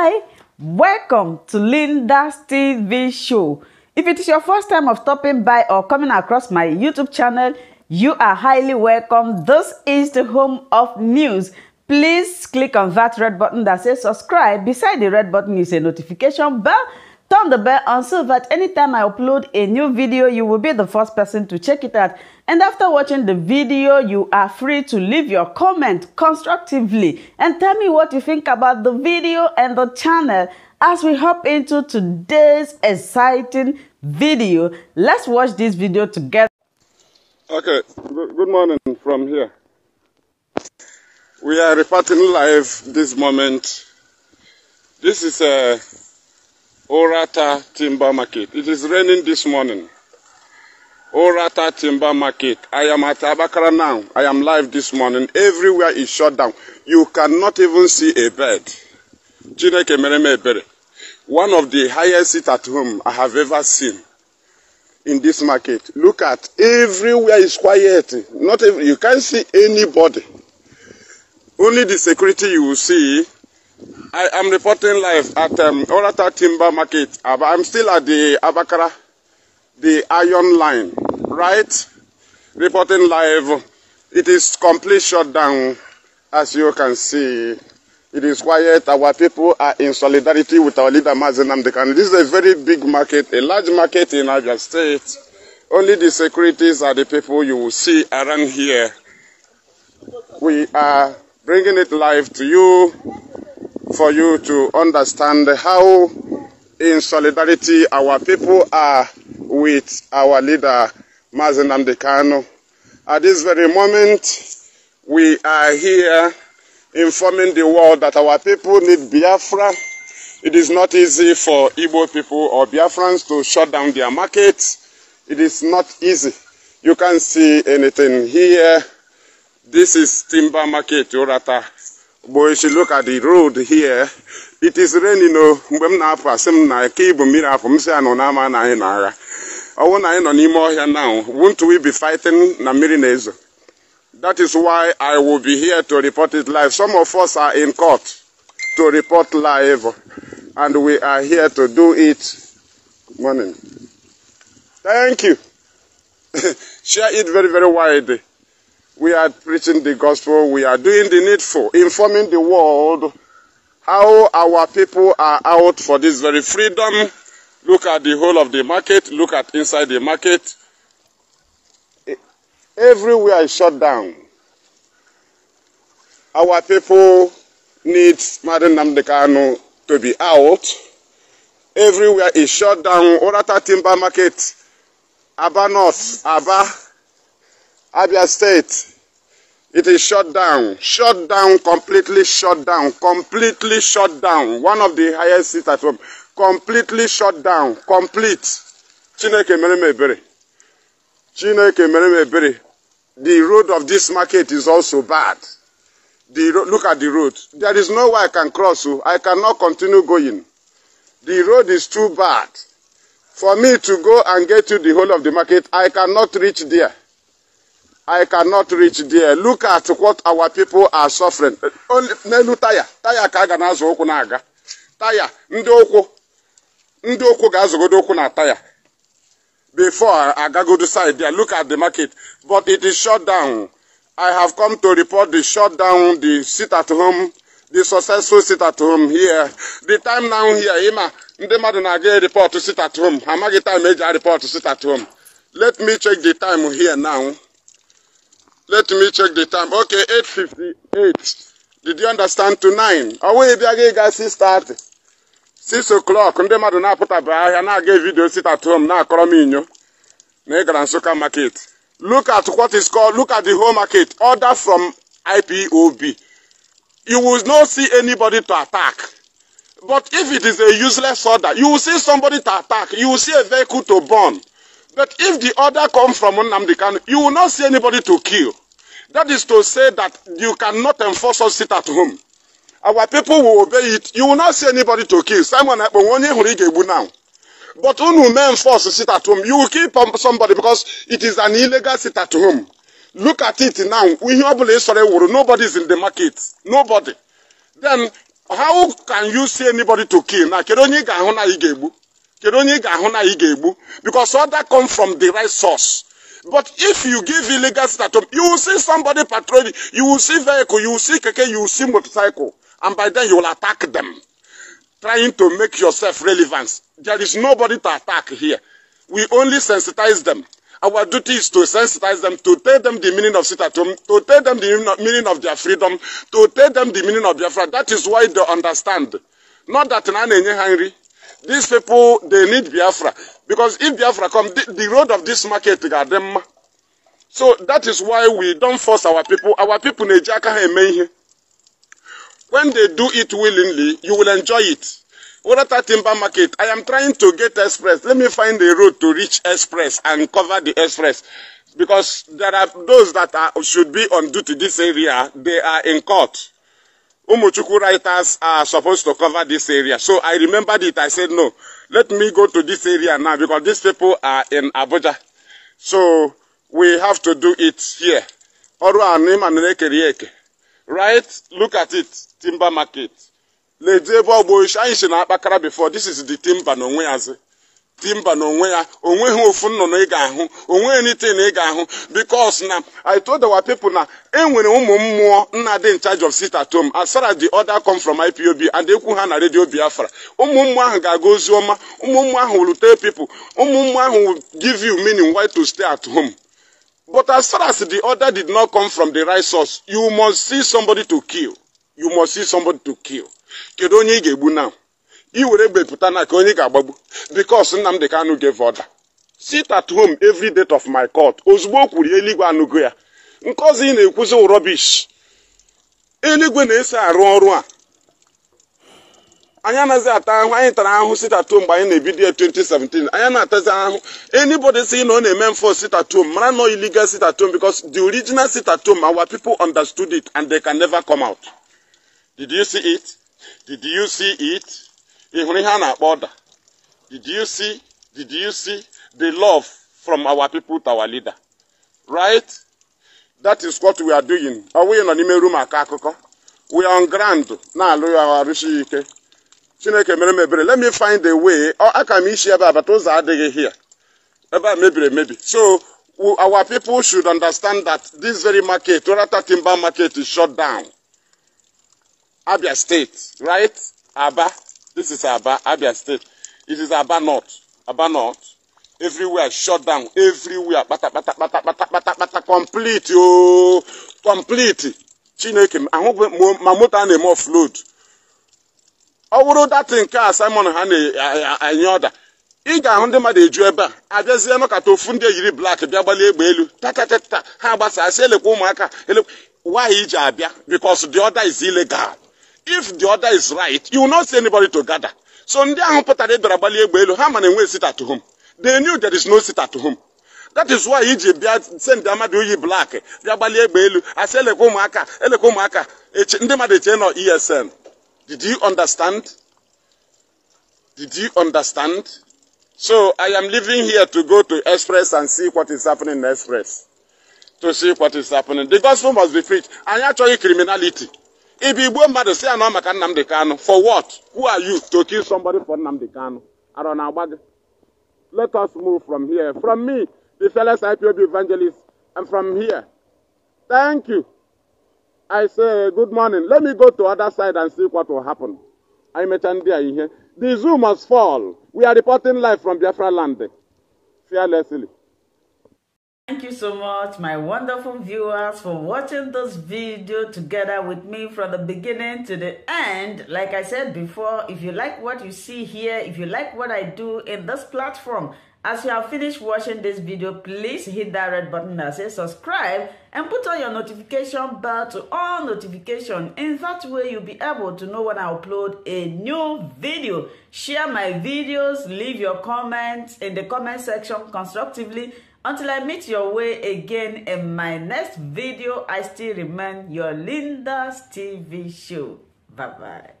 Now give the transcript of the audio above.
Hi, welcome to Linda's TV show. If it is your first time of stopping by or coming across my YouTube channel, you are highly welcome. This is the home of news. Please click on that red button that says subscribe. Beside the red button is a notification bell Turn the bell on so that anytime I upload a new video, you will be the first person to check it out. And after watching the video, you are free to leave your comment constructively and tell me what you think about the video and the channel. As we hop into today's exciting video, let's watch this video together. Okay, good morning from here. We are reporting live this moment. This is a Orata Timber Market. It is raining this morning. Orata Timber Market. I am at Abakara now. I am live this morning. Everywhere is shut down. You cannot even see a bed. Chineke mereme ebere. One of the highest seats at home I have ever seen in this market. Look at everywhere is quiet. Not every, you can't see anybody. Only the security you will see I am reporting live at um, Orata Timber Market. I'm still at the Abakara, the iron line, right? Reporting live. It is complete shutdown, as you can see. It is quiet. Our people are in solidarity with our leader, Mazen Amdekan. This is a very big market, a large market in Abia State. Only the securities are the people you will see around here. We are bringing it live to you. for you to understand how in solidarity our people are with our leader, Mazen Amdekano. At this very moment, we are here informing the world that our people need Biafra. It is not easy for Igbo people or Biafrans to shut down their markets. It is not easy. You can't see anything here. This is Timber Market, Urata. but if you look at the road here it is raining no. Oh, mgbe m na-apụ asị m na ike ibu mmiri afọ m si anọ n'ama na anyị na now won't we be fighting Namirines? that is why i will be here to report it live some of us are in court to report live and we are here to do it Good morning thank you share it very very widely We are preaching the gospel. We are doing the needful, informing the world how our people are out for this very freedom. Look at the whole of the market. Look at inside the market. Everywhere is shut down. Our people need Madam Namdekano to be out. Everywhere is shut down. Orata Timber Market, Aba North, Aba Abia State. It is shut down, shut down, completely shut down, completely shut down. One of the highest seats at home, completely shut down, complete. Chineke mere m ebere. Chineke mere m ebere. The road of this market is also bad. The look at the road. There is no way I can cross. So oh. I cannot continue going. The road is too bad. For me to go and get to the whole of the market, I cannot reach there. I cannot reach there. Look at what our people are suffering. Only n'elu taya taya ka a ga na-azụ ụkwụ na-aga taya ndị ụkwụ ndị ụkwụ ga-azụgodo ụkwụ na taya before Aga agagodo side there. Look at the market. But it is shut down. I have come to report the shutdown, the sit at home, the successful sit at home here. The time now here, Ima, ndị mmadụ na-aga report sit at home. Amaghị time eji report sit at home. Let me check the time here now. Let me check the time. Okay, 8.58. Did you understand to 9? Away bịaga ịga start, 6 o'clock ndị mmadụ na-apụtabe ahịa na-aga vidio sit at home Now call me m inyo na ị gara Nsụka market. Look at what is called, look at the whole market. Order from IPOB. You will not see anybody to attack. But if it is a useless order, you will see somebody to attack. You will see a vehicle to burn. But if the order comes from Nnamdi Kanu, you will not see anybody to kill. That is to say that you cannot enforce us sit at home. Our people will obey it. You will not see anybody to kill. Simon Akponwonye eh, Hurigegbu now. But who will enforce to sit at home. You will kill somebody because it is an illegal sit at home. Look at it now. Nobody is in the market. Nobody. Then how can you see anybody to kill? Now, kedu onye ị ga-ahụ na Because all that comes from the right source. But if you give illegal status, you will see somebody patrolling, you will see vehicle, you will see keke, you will see motorcycle. And by then you will attack them, trying to make yourself relevant. There is nobody to attack here. We only sensitize them. Our duty is to sensitize them, to tell them the meaning of sitatum, to tell them the meaning of their freedom, to tell them the meaning of their freedom. That is why they understand. Not that na na-enye These people, they need Biafra. Because if Biafra come, the, the road of this market got them. So that is why we don't force our people. Our people, when they do it willingly, you will enjoy it. What at timber market? I am trying to get express. Let me find a road to reach express and cover the express. Because there are those that are, should be on duty this area, they are in court. Umuchuku writers are supposed to cover this area. So I remembered it. I said, no, let me go to this area now because these people are in Abuja. So we have to do it here. Right? Look at it. Timber market. Before, this is the timber. dị mba n'onwe ya onweghị ofu nnụnụ ị ga-ahụ onweghị nite na ị ga-ahụ because na I told our na enwere ụmụ mmụọ nna dị in of sit tom home as far as the other come IPOB and ekwu ha na radio Biafra ụmụ ahụ ga-aga ozi ọma ụmụ ahụ will tell people ụmụ mmụọ ahụ will give you meaning why stay at home but as far as the order did not come from the right source you must see somebody to kill you must see somebody to kill kedu onye ị ga-egbu na i were pụta na ka onye ga-agbagbu bikos Nnamdi Kanu gave order sit at home every date of my court ozugbo o kwuru eluigwe anụgo ya nkọzi ị na-ekwuzi rọbish eluigwe na-eso arụ ọrụ a anyị anaghị ata ahụ anyị tara at home mgbe anyị na-ebido ya 2017 anyị na-atazi ahụ anybody sị na ọ na-eme at home mara sit at home because the original home our people understood it and they can never come out did you see it did you see it ị hụrụ ihe a na-akpọ ọda did you see did you see the love from our people to our leader right that is what we are doing ọ nọ n'ime rum akọ akụkọ we are on ground na-alụ ya arụsi ike chineke mere m let me find a way aka m isi ebe abata ụzọ adịghị here ebe a mebiri emebi so our people should understand that this very market orata timber market is shut down abia state right aba This is Aba, Abia State. It is Aba North. Aba North. Everywhere shut down. Everywhere. Bata, bata, bata, bata, bata, bata. Complete, yo. Complete. Chineke, ahụ ma moto a na-eme offload. Ọ bụrụ nke a Simon ha na-enye ọda. Ị ga-ahụ ndị mmadụ eju ebe a zia nọkata ofu ndị eyiri blak bịa gbalie egbe elu tatatata ha gbasasị elekwa ụmụaka elekwa nwaanyị iji abịa because the order is illegal. if the order is right you will not see anybody to gather so ndị ahụ pụtara ịdọrọ gbalị egbe elu ha ma na enwe sit at home they knew there is no sit at home that is why iji bịa send amadu uyi black Rabali gbalị I elu asị maka, ụmụaka maka. ụmụaka ndị mmadụ eche esn did you understand did you understand so i am leaving here to go to express and see what is happening in express to see what is happening the gospel must be preached I actually criminality If Igbo mmadụ si anọ maka Nnamdi Kanu for what? Who are you to kill somebody for Nnamdi Kanu? Arọ na-agba gị. Let us move from here. From me, the fearless IPOB evangelist, and from here. Thank you. I say good morning. Let me go to other side and see what will happen. I mentioned there here. The zoo must fall. We are reporting live from Biafra land. Fearlessly. Thank you so much, my wonderful viewers, for watching this video together with me from the beginning to the end. Like I said before, if you like what you see here, if you like what I do in this platform, as you have finished watching this video, please hit that red button that says subscribe and put on your notification bell to all notification. In that way, you'll be able to know when I upload a new video. Share my videos, leave your comments in the comment section constructively Until I meet your way again in my next video, I still remain your Linda's TV show. Bye-bye.